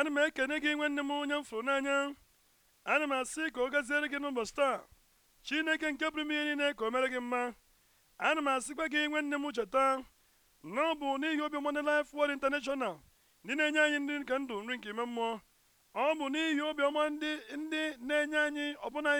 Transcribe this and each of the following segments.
ana m ekene gị nwanne m onye m fụrụ n'anya ana m asị ka ọ gaziere gị n'ụbọchị taa chineke nke bụrụ m ihe niile ka o mere gị mma ana m asịkwa gị nwanne m cheta na ọ bụ n'ihi obi ọma na Life Word International ndị na-enye anyị ndị nke ndụ nri nke ime mmụọ ọ bụ n'ihi obiọma ndị ndị na-enye anyị ọbụna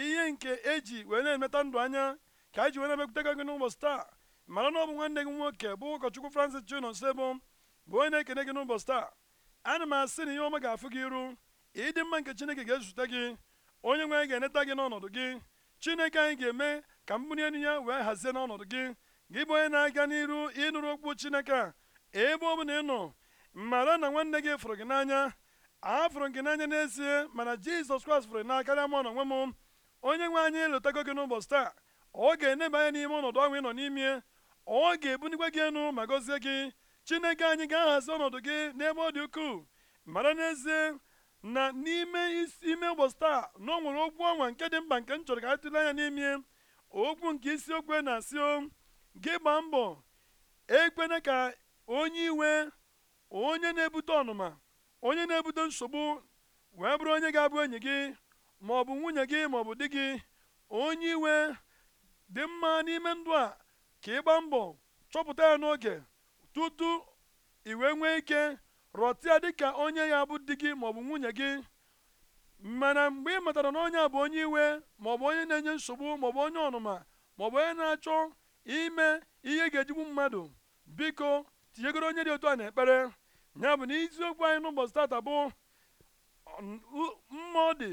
ihe nke eji wee na-emeta ndụ anya ka anyị ji wee na-emekwutega gị n'ụbọchị taa mara na ọ bụ nwanne gị nwoke bụ ụkọchukwu Francis Chinonsoebo bụ onye na-ekene gị n'ụbọchị taa ana m asị na ihe ọma ga-afụ gị iru ịdị mma nke chineke ga-ezute gị onye nwe anyị ga-eneta gị n'ọnọdụ gị chineke anyị ga-eme ka mgbụri enu ya wee hazie n'ọnọdụ gị gị bụ onye na-aga n'iru ịnụrụ okwu chineke a ebe ọ bụ na ị nọ mara na nwanne gị fụrụ gị n'anya a gị n'anya n'ezie mana jizọs kraịst fụrụ n'aka karịa m ọnọnwe m onye nwe anyị eletago gị n'ụbọchị taa ọ ga-eneba anya n'ime ọnọdụ ahụ ị nọ n'ime ọ ga-ebunikwa gị enu ma gọzie gị chineke anyị ga-ahazi ọnọdụ gị n'ebe ọ dị ukwuu mara n'ezie na n'ime isi ime ụbọchị taa na ọ nwere okwu ọnwa nke dị mkpa nke m chọrọ ka anyị tụle anya n'ime okwu nke isiokwu na-asị o gị gbaa mbọ ekwena ka onye iwe onye na-ebute ọnụma onye na-ebute nsogbu wee bụrụ onye ga-abụ enyi gị ma ọ bụ nwunye gị ma ọ bụ di gị onye iwe dị mma n'ime ndụ a ka ị gbaa mbọ chọpụta ya n'oge tutu iwe wee nwee ike rọtịa dịka onye ya bụ di gị maọbụ nwunye gị mana mgbe ị matara na onye a bụ onye iwe maọbụ onye na-enye nsogbu maọbụ onye ọnụma maọbụ onye na-achọ ime ihe ga-ejigbu mmadụ biko tinyegoro onye dị otu a na ekpere ya bụ na iziokwu anyị n'ụbọchị tata bụ mmụọ dị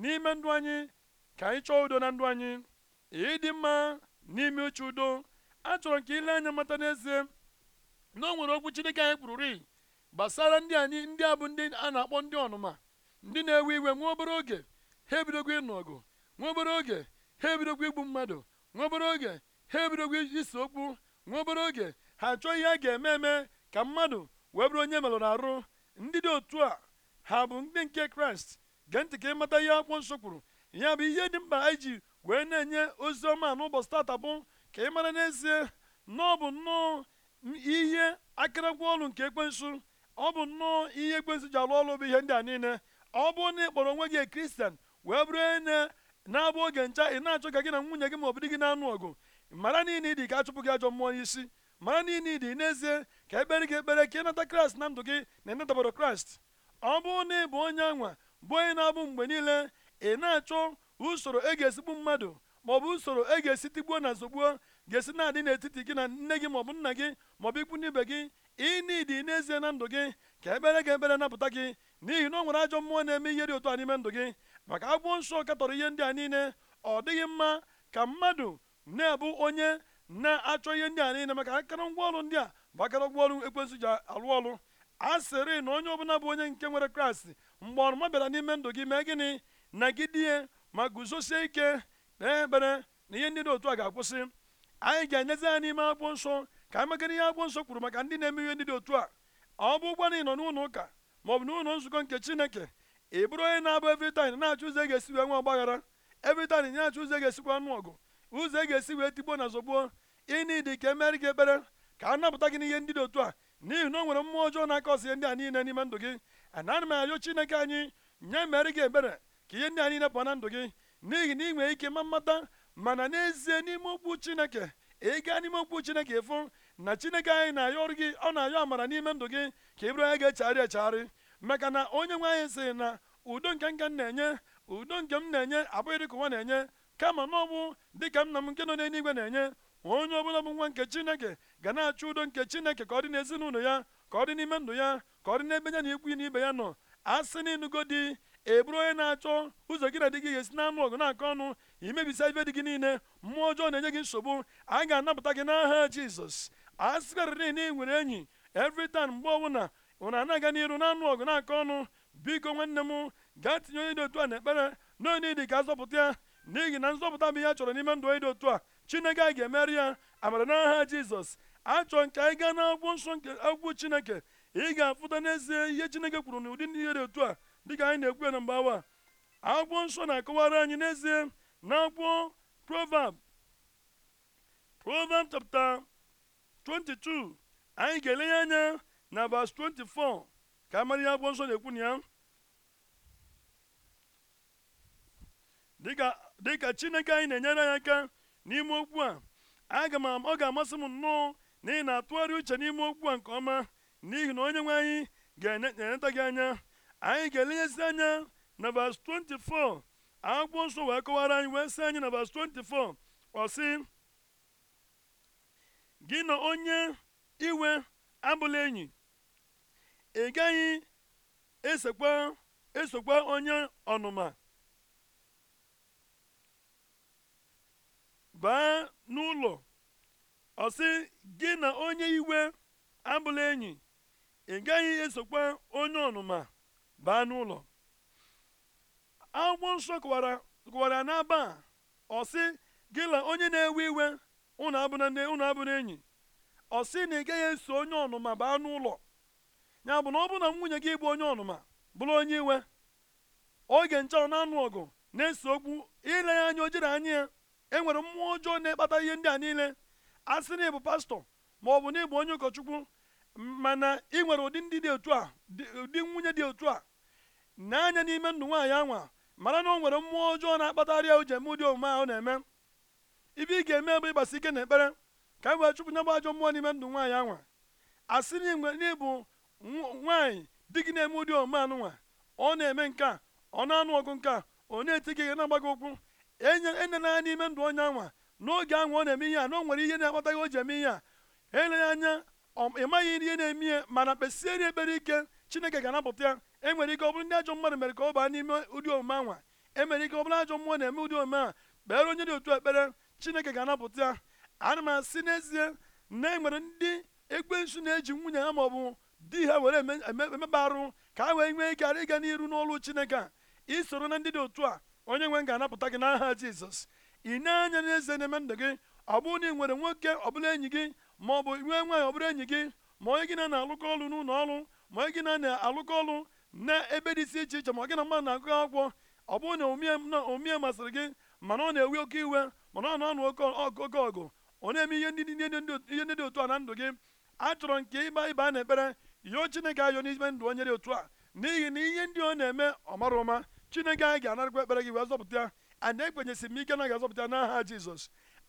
n'ime ndụ anyị ka anyị chọọ udo na ndụ anyị ịdị mma n'ime uche udo achọrọ ka ile anya mata n'ezie na o nwere okwu Chineke anyị kwururi gbasara ndị anyị ndị a bụ ndị a na-akpọ ndị ọnụma ndị na-ewe iwe nwa obere oge ha ebidogwo ịnụ ọgụ nwa obere oge ha ebidogwo igbu mmadụ nwa obere oge ha ebidogwo ise okwu nwa obere oge ha achọọ ihe a ga-eme eme ka mmadụ wee bụrụ onye merụrụ arụ ndị dị otu a ha bụ ndị nke kraịst gee ntị ka ịmata ihe akwụkwọ nsọ kwuru ya bụ ihe dị mkpa anyị ji wee na-enye ozi ọma n'ụbọchị tata bụ ka ị mara n'ezie na ọ bụ nnọọ ihe akịrịkwa ọrụ nke ekwensu ọ bụ nnọọ ihe ekwensu ji alụ ọrụ bụ ihe ndị a niile ọ bụrụ na ị kpọrọ onwe gị kristian wee bụrụ na na-abụ oge ncha ị na-achọ ka gị na nwunye gị ma ọ gị na-anụ ọgụ mara niile ịdị ka achụpụ gị ajọ mmụọ n'isi mara niile ịdị n'ezie ka ekpere gị ekpere ka ịnata kraịst na ndụ gị na ịnatabara kraịst ọ bụ na ị bụ onye anwa bụ onye na-abụ mgbe niile ị na-achọ usoro e ga-esigbu mmadụ ma bụ usoro e ga-esi tigbuo na zogbuo ga-esi na-adị n'etiti gị na nne gị maọbụ nna gị maọbụ ikwu n'ibe gị ịnidi n'ezie na ndụ gị ka ebere gị ebere napụta gị n'ihi na ọ nwere ajọ mmụọ na-eme ihe dị otu a n'ime ndụ gị maka agwọ nsọ katọrọ ihe ndị a niile ọ dịghị mma ka mmadụ na ebu onye na-achọ ihe ndị a niile maka akụrụngwa ọrụ ndị a bụ akụrụngwa ngwaọrụ ekwensụ ji alụ ọrụ a sịrị na onye ọbụla bụ onye nke nwere kraịst mgbe ọrụma bịara n'ime ndụ gị mee gịnị nagide ma guzosie ike kpee ekpere na ihe ndị dị otu a ga-akwụsị anyị ga-enyezi ya n'ime akwụkwọ nsọ ka anyị maka ihe akwụkwọ nsọ kwuru maka ndị na-eme ihe ndị dị otu a ọ bụ ụgwọ na ị nọ n'ụlọ ụka ma ọ bụ n'ụlọ nzukọ nke chineke ị bụrụ onye na-abụ evritin na-achọ ụzọ e ga-esi wee nwe ọgbaghara evritin na-achọ ụzọ e ga-esikwa anụ ọgụ ụzọ ga-esi wee tigbuo na zọgbuo ịnidi ka emere gị ekpere ka a napụta gị n'ihe ndị dị otu a n'ihi na o nwere mmụọ ọjọọ na-aka ọsị ndị a niile n'ime ndụ gị anaghị m arịọ chineke anyị nye mere gị ebere ka ihe ndị a niile pụọ na ndụ gị n'ihi na ị nwere ike ma mmata mana n'ezie n'ime okwu chineke ị gaa n'ime okwu chineke ịfụ na chineke anyị na-ayọ ọrụ gị ọ na-ayọ amara n'ime ndụ gị ka ị bụrụ onye ga-echegharị echegharị maka na onye nwe anyị sịrị na udo nke nka m na-enye udo nke m na-enye abụghị dịka ụwa na-enye kama na dị ka dịka nna m nke nọ n'eluigwe na-enye onye ọbụla bụ nwa nke chineke ga na-achọ udo nke chineke ka ọ dị n'ezinụlọ ya ka ọ dị n'ime ndụ ya ka ọ dị n'ebe ya na ikwu na ibe ya nọ asị na ịnụgo eburu onye na-achọ ụzọ gị na dị gị ga-esi na anụ ọgụ na-akọ ọnụ imebisa ibe dị gị niile mmụọ ọjọọ na-enye gị nsogbu a ga-anapụta gị n'aha jizọs a sịkarịrị na ị nwere enyi evritan mgbe ọbụla ụna ana-aga n'iru na anụ ọgụ na-akọ ọnụ biko nwanne m gaa tinye onye dị otu a na na onye dị ka azọpụta ya n'ihi na nzọpụta bụ ihe a chọrọ n'ime ndụ onye dị otu a chineke a ga-emeri ya amara n'aha jizọs achọrọ nke anyị gaa n'akwụkwọ nsọ nke akwụkwọ chineke ị ga-afụta n'ezie ihe chineke kwuru n'ụdị ihe dị otu a dịka anyị na-ekwu na mgbe awa akwụkwọ nsọ na-akọwara anyị n'ezie na akwụkwọ proverb proverb chapta 22 anyị ga ya anya na verse 24 ka amara ihe akwụkwọ nsọ na-ekwu na ya dịka chineke anyị na-enyere anyị aka n'ime okwu a aga m ọ ga-amasị m nnọọ na ị na-atụgharị uche n'ime okwu a nke ọma n'ihi na onye nwe anyị ga-eneta gị anya anyị ga-elenyesi anya na vas 24 akwụkwọ nsọ wee kọwara anyị wee sị anyị na vas 24 ọ sị gị na onye iwe abụla enyi ị gaghị esokwa esokwa onye ọnụma baa n'ụlọ ọ sị gị na onye iwe abụla enyi ị gaghị esokwa onye ọnụma baa n'ụlọ akwụkwọ nsọ kọwara kọwara n'aba a ọ sị gịla onye na-ewe iwe ụnụ abụna nne ụnụ abụna enyi ọ sị na ị gaghị eso onye ọnụma baa n'ụlọ ya bụ na ọ bụrụ na nwunye gị bụ onye ọnụma bụrụ onye iwe oge nche ọ na-anụ ọgụ na-eso okwu ile ya anya ojere anya ya enwere mmụọ ọjọọ na-ekpata ihe ndị a niile a sị na ịbụ pastọ ma ọ bụ na ịbụ onye ụkọchukwu mana ị nwere ụdị ndị dị otu a ụdị nwunye dị otu a n'anya n'ime ndụ nwaanyị anwa mara na ọ nwere mmụọ ọjọọ na-akpatarịa ujem dị omume ahụ na-eme ibe ị ga-eme bụ ịgbasi ike na ekpere ka e wee chụpụ nyabụ ajọ mmụọ n'ime ndụ nwaanyị anwa a asị n'ịbụ nwaanyị di gị na-eme ụdị omume nwa ọ na-eme nke ọ na-anụ ọgụ nke a ọ na-eti gị na-agba gị ụkwụ enyenanya e n'ime ndụ onye anwa n'oge anwa ọ na-eme ihe a na o nwere ihe na-akpata gị o ji eme ihe a eleghị anya ị maghị ihe na-eme ihe mana kpesiere ekpere ike chineke ga-anapụta enwere ike ọ bụrụ ndị ajọ mmadụ mere ka ọ baa n'ime ụdị omume anwa emere ike ọ bụrụ ajọ mmụọ na-eme ụdị omume a kpere onye dị otu ekpere chineke ga-anapụta ya ana m asị n'ezie na e nwere ndị ekwensu na-eji nwunye ha ma ọ bụ di ha were emeba arụ ka ha wee nwee ike ghara ịga n'iru n'ọlụ chineke a isoro na ndị dị otu a onye nwe ga-anapụta gị n'aha jizọs ị na-anya n'ezie na-eme ndụ gị ọ bụrụ na ị nwere nwoke ọbụla enyi gị ma ọ nwee nwaanyị ọbụla enyi gị ma onye gị na na-alụkọ ọlụ n'ụlọ ọrụ ma onye gị na-alụkọ ọlụ na ebe dị isi iche iche ma ọ gị na mmadụ na-agụ akwụkwọ ọ bụrụ na omie masịrị gị mana ọ na-ewe oke iwe mana ọ na-anụ oke ọgụ ọ na-eme ihe ndị dị otu a na ndụ gị chọrọ nke ịba ịba na ekpere yọọ chineke ayọ n'ime ndụ onye dị otu a n'ihi na ihe ndị ọ na-eme ọ mara ụma chineke anyị ga-anarakwa ekpere gị wee zọpụta ya anyị ekpenyesi m ike na ga-azọpụta n'aha jizọs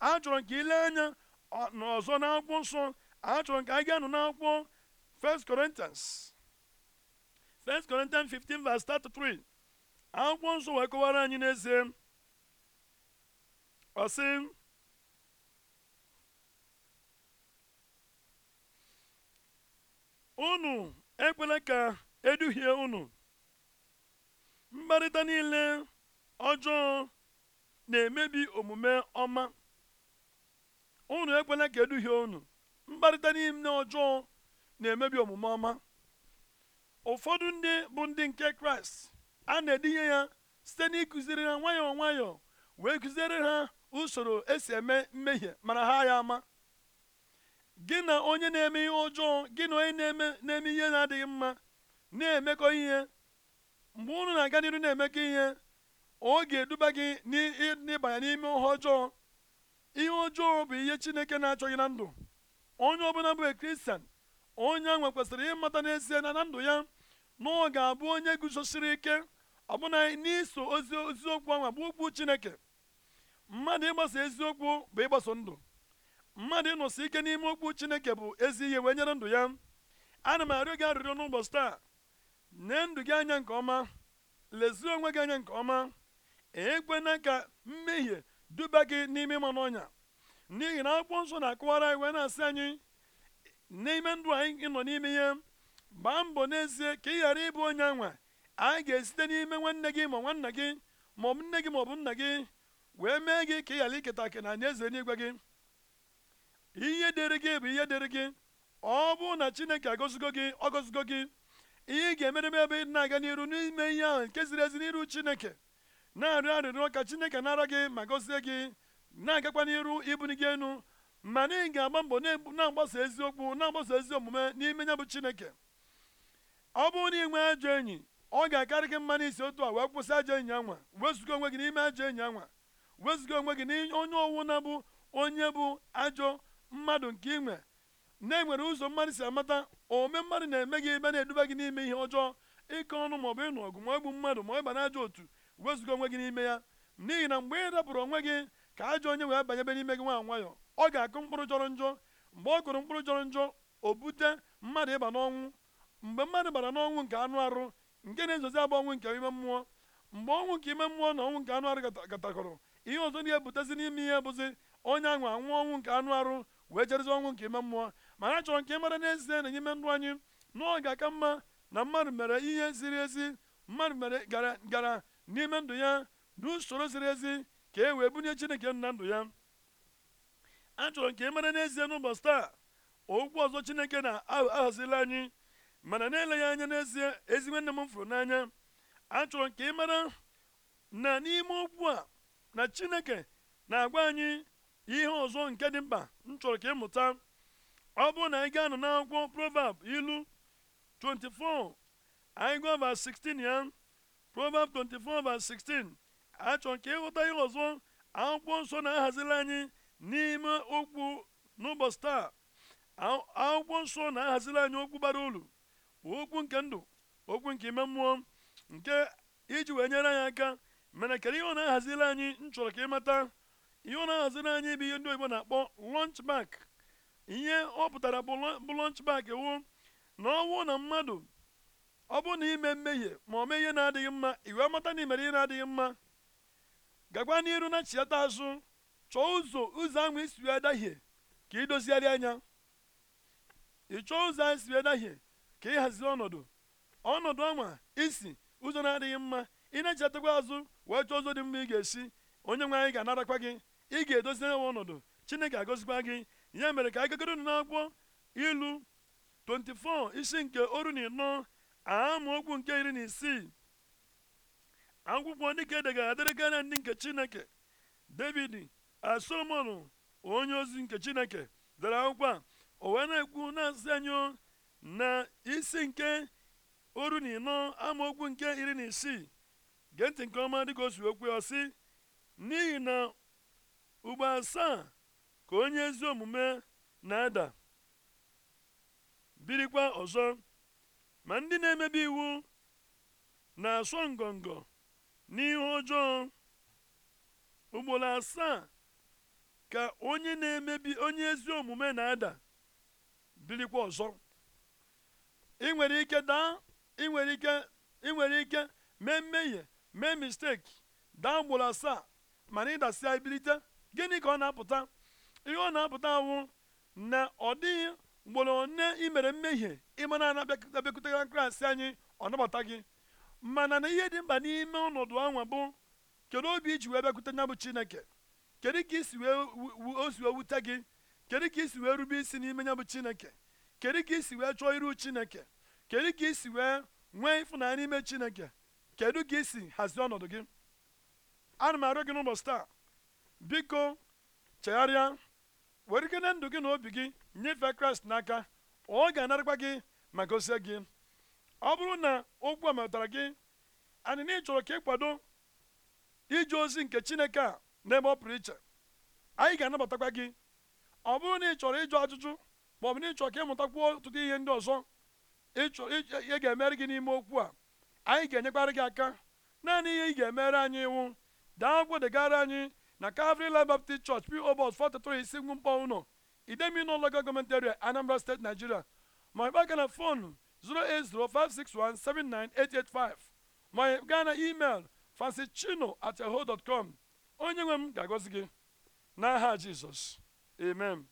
achọrọ nke ile anya n'ọzọ n'akwụkwọ nsọ achọrọ nke anyị ga-anụ n'akwụkwọ 1 Corinthians 1 Corinthians 15 verse 33 akwụkwọ nsọ wee kọwara anyị n'ezie ọ sị unu ekwela ka eduhie unu mkparịta niile ọjọọ na-emebi omume ọma unu ekwela ka eduhie unu mkparịta niile ọjọọ na-emebi omume ọma ụfọdụ ndị bụ ndị nke kraịst a na-edinye ya site n'ịkụziri ha nwayọọ nwayọọ wee kụziere ha usoro esi eme mmehie mara ha ya ama gị na onye na-eme ihe ọjọọ gị na onye na-eme na-eme ihe na-adịghị mma na-emekọ ihe mgbe unu na-aga n'iru na-emekọ ihe ọ ga-eduba gị n'ịbanye n'ime ihe ọjọọ ihe ọjọọ bụ ihe chineke na-achọghị na ndụ onye ọbụla bụ kristian onye ahụ kwesịrị ịmata n'ezie na na ndụ ya na ọ ga-abụ onye guzosiri ike ọbụna n'iso ozi eziokwu ahụ bụ okwu chineke mmadụ ịgbasa eziokwu bụ ịgbaso ndụ mmadụ ịnọsi ike n'ime okwu chineke bụ ezi ihe wee nyere ndụ ya ana m arịọ gị arịrịọ n'ụbọchị taa nee ndụ gị anya nke ọma lezie onwe gị anya nke ọma ekwena ka mmehie duba gị n'ime ịma n'ọnya n'ihi na akwụkwọ nsọ na-akọwara anyị wee na-asị anyị n'ime ndụ anyị nọ n'ime ihe gbaa mbọ n'ezie ka ị ghara ịbụ onye anwa anyị ga-esite n'ime nwanne gị ma nwanna gị ma ọ bụ nne gị ma ọ bụ nna gị wee mee gị ka ị ghara iketa aka na eze n'igwe gị ihe dịrị gị bụ ihe dịrị gị ọ bụ na chineke agọzigo gị ọ gọzigo gị ihe ị ga me ebe ị na-aga n'iru n'ime ihe ahụ nke ziri ezi n'iru chineke na-arịọ arịrịọ ka chineke nara gị ma gọzie gị na-agakwa n'iru ibuli gị enu mana ị ga-agba mbọ na-agbasa eziokwu na-agbasa ezi omume n'ime ya bụ chineke ọ bụrụ na ị nwee ajọ enyi ọ ga-akarị gị mma n'isi otu a wee kwụsị ajọ enyi anwa wezụga onwe gị n'ime ajọ enyi anwa wezụga onwe gị n'onye ọwụ na bụ onye bụ ajọ mmadụ nke ị na-enwere ụzọ mmadụ si amata ome mmadụ na-eme gị ebe na-eduba gị n'ime ihe ọjọọ ịkọ ọnụ maọbụ ịnụ ọgụ ma egbu mmadụ ma ịba n'ajọ otu wezụga onwe gị n'ime ya n'ihi na mgbe ị dapụrụ onwe gị ka ajọ onye wee banyebe n'ime gị nwa nwayọ ọ ga-akụ mkpụrụ jọrọ njọ mgbe ọ kụrụ mkpụrụ jọrọ njọ o bute mmadụ ịba n'ọnwụ mgbe mmadụ bara n'ọnwụ nke anụ arụ nke na-ezozi abụ ọnwụ nke ime mmụọ mgbe ọnwụ nke ime mmụọ na ọnwụ nke anụ arụ gatakọrọ ihe ọzọ na-ebutezi n'ime ihe bụzi onye anwụ anwụ ọnwụ nke anụ arụ wee jerezi ọnwụ nke ime mmụọ ma ha chọrọ nke ịmara n'ezie na ime ndụ anyị na ga-aka mma na mmadụ mere ihe ziri ezi mmadụ mere gara n'ime ndụ ya n'usoro ziri ezi ka e wee bunye chineke na ndụ ya a chọrọ nke ịmara n'ezie n'ụbọchị taa okwu ọzọ chineke na ahazila anyị mana na-eleghị anya n'ezie ezi nne m fụrụ n'anya achọrọ nke ka ị mara na n'ime okwu a na chineke na-agwa anyị ihe ọzọ nke dị mkpa m chọrọ ka ịmụta ọ bụrụ na anyị ga-anọ n'akwụkwọ proverb ilu 24 anyị gụọ 16 ya proverb 24 va 16 achọrọ ka ị ịghọta ihe ọzọ akwụkwọ nsọ na-ahazila anyị n'ime okwu n'ụbọchị taa akwụkwọ nsọ na-ahazila anyị okwu bara uru okwu nke ndụ okwu nke ime mmụọ nke iji wee nyere anyị aka mere kedu ihe ọ na-ahaziri anyị m chọrọ ka mata ihe ọ na-ahaziri anyị bụ ihe ndị oyibo na-akpọ lọnch ihe ọ pụtara bụ lọnch wụ na ọnwụ na mmadụ ọ bụrụ na ime mmehie ma ọ mee ihe na-adịghị mma iwe amata na imere ihe na-adịghị mma gakwa n'iru na chiata azụ chọọ ụzọ ụzọ ahụ isi wee dahie ka idozigharị anya ị chọọ ụzọ anyị si wee dahie ka ịhazi ọnọdụ ọnọdụ ọma isi ụzọ na-adịghị mma ị na-echetakwa azụ wee chọọ ụzọ dị mma ị ga-esi onye nwe anyị ga-anarakwa gị ị ga-edozi nwa ọnọdụ chineke agozikwa gị ya mere ka anyị nụ n'akwụkwọ ilu 24 isi nke oru na ịnọ okwu nke iri na isii akwụkwọ ndị edegara adịrị ndị nke chineke david solomon onye ozi nke chineke dara akwụkwọ a o wee na-ekwu na-asị anyị na isi nke oru na ịnọ amaokwu nke iri na isii gee nke ọma dịka o si okwu ya sị n'ihi na ugbo asaa ka onye ezi omume na-ada birikwa ọzọ ma ndị na-emebi iwu na-asọ ngọngọ n'ihe ọjọọ ugboro asaa ka onye na-emebi onye ezi omume na-ada birikwa ọzọ ị nwere ike daa ị nwere ike nwere ike mee mmehie mee misteki daa ugboro asaa mana ịdasịa ibilite gịnị ka ọ na-apụta ihe ọ na-apụta wụ na ọ dịghị ugboro one i mere mmehie ịmana na abịakwutegara kraịst anyị ọ nabata gị mana na ihe dị mkpa n'ime ọnọdụ anwa bụ kedu obi iji wee bịakwute nya bụ chineke kedu ka isi wee o wee wute gị kedu ka isi wee rube isi n'ime nya bụ chineke kedu ka isi wee chọọ iru chineke kedu ka isi wee nwee ịfụnanya n'ime chineke kedu ka isi hazie ọnọdụ gị ana m arịọ gị n'ụbọchị taa biko chegharịa were ike na ndụ gị na obi gị nyefee kraịst n'aka ọ ga-anarakwa gị ma gozie gị ọ bụrụ na okwu a gị anyị na ịchọrọ ka ịkwado ije ozi nke chineke a n'ebe ọ pụrụ iche anyị ga-anabatakwa gị ọ bụrụ na ị chọrọ ịjụ ajụjụ ma ọ bụ na ịchọ ka ịmụtakwuo ọtụtụ ihe ndị ọzọ ịchọ ihe ga-emere gị n'ime okwu a anyị ga enyekwara gị aka naanị ihe ị ga-emere anyị iwu daa akwụkwọ degara anyị na Calvary Life Baptist Church P.O. Box 433 Ngwumkpọ ụlọ Idemili Local Government Area Anambra steeti Nigeria ma ị bịa na fon 08056179885 ma ị gaa na email com onye nwe m ga-agọzi gị n'aha Jizọs amen